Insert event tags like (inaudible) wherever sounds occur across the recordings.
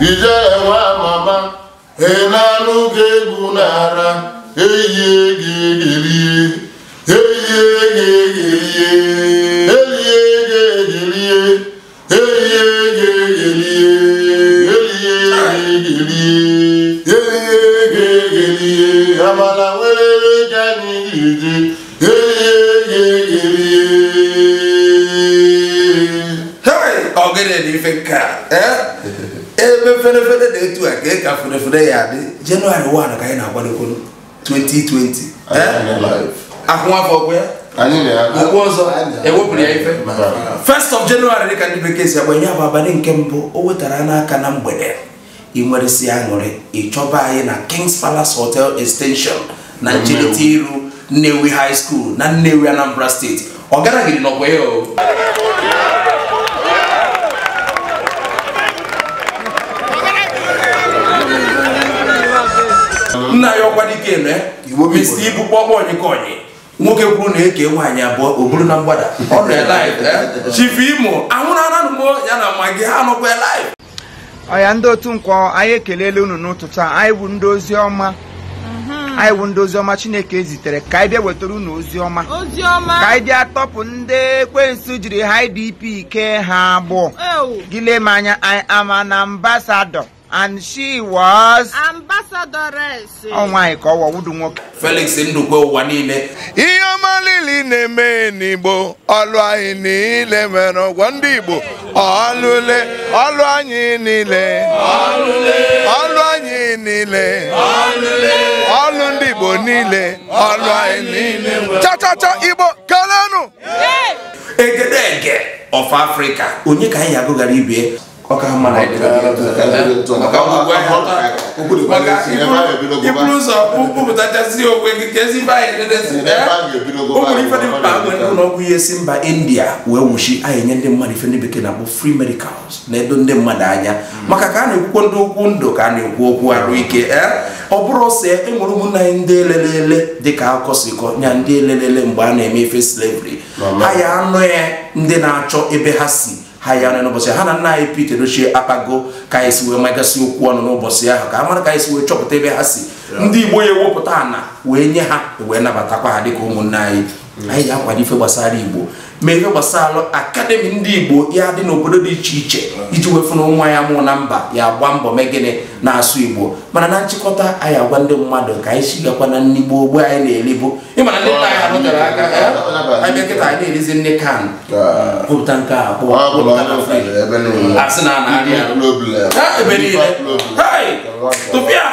ijele nwa mama ị e na-anụ egwu n'ara eyie gị egerie eyie gị gị egerie eyie gị egerie eyie gị egerie nwere ga egerie nke a eh? (laughs) ferefere dị etu a ka ka ferefere ya adị jenụwarị 1 ka anyị na-agbadokwolo 2020 akwụnwafọ ya ụgwọ ọzọ ewepụrụ ya ife first of January dịka ndị bekee si agbanye ya bụ abalị nke mbụ o wetara n'aka na mgbede ị nweresi aṅụrị ịchọba anyị na King's Palace Hotel Extension na ncherịta iru Nnewi High School na Nnewi Anambra Steeti ọ garaghị n'ọkwa ya o nna ya ọkwa dike eme eh? mesi ibu kpọkpọ onyịkonyi nwoke kwuru na eke nwaanyị abụọ o buru na mgbada ọ nọ eh? chifu imo anwụrụ ananụ m ya na magi ha anụkwa live ọya ndị otu nkwọ anyị ekelela unu n'ụtụtụ a anyị bụ ndị ozi ọma mhm. anyị bụ ndị oziọma chineke zitere ka anyị bịa wetara unu oziọma ka anyị bịa tọpụ ndị ekwensu jiri ha idp ike ha abụọ gịle m anya anyị ama na ambasadọ and she was ambassadoress ọnwa ịkọwa wudu nwoke Felix Ndukwe ụwa niile ihe ọma niile na-eme n'Igbo ọlụ anyị niile nwere ụgwọ ndị Igbo ọlụle ọlụ anyị niile ọlụ anyị niile ọlụ ndị Igbo niile ọlụ anyị niile chachacha Igbo kelenụ egedege of Africa onye ka anyị agụghara ibe ọka ha ọgwụ ihe si mba india wee nwuchi anyị nye ndị mmadụ ife bekee na-akpọ free medicals na-edo ndị mmadụ anya maka ka a na-ekwukwo ndị okwu ndụ ka a na-ekwu okwu arụ ike e? ọ bụrụ ọsọ enwere ụmụnna anyị ndị elelele dịka akụkọ si ya ndị elelele mgbe a na-eme ife slavery anyị ya ya ndị na-achọ ebe ha si ha ya ọnụ n'ụbọchị ha na nna anyị Pete Edochie akpago ka anyị si wee magasị okwu ọnụ n'ụbọchị ahụ ka a mara ka anyị si wee chọpụta ebe ha si ndị Igbo ya ewepụta ana wee nye ha wee nabatakwa ha ụmụ ụmụnne anyị anyị ga-akwado ife gbasara igbo mee ife gbasara akademi ndị igbo ya dị n'obodo dị iche iche iji wefu na nwa ya mụ na mba ya gba mbọ megịnị na-asụ igbo mana na nchịkọta anyị agwa ndị mmadụ ka anyị sigakwa na nigbo ogbe anyị na-eri bụ ịmana ndị nna anyị arụtara aka anyị kịta anyị na-erizi nne kan ah. pụta nke a kpụọ asị na anarị ebe niile tụpịa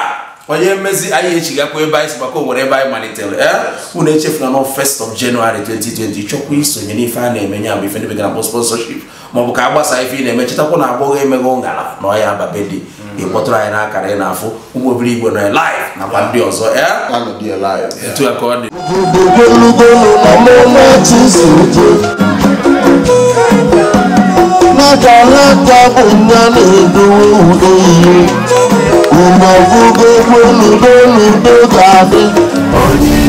onye mmezi anyị echigakwa ebe anyị si maka onwere ebe anyị malitere eh? unu echefula na first of January 2020 chọkwa isonye n'ife a na-eme ya bụ ife ndị bekee na sponsorship maọbụ ka a gbasaa ife ị na-eme chetakwa na agbọghọ emeghe ụṅara na ọya babedi mm. ịkpọtụrụ anyị n'akara ị na-afụ ụmụ obere igwe nọ live nakwa ndị ọzọ eh? etu Na ka ọ dị ìmọ̀ fún gbogbo olùdólùgbò tàbí.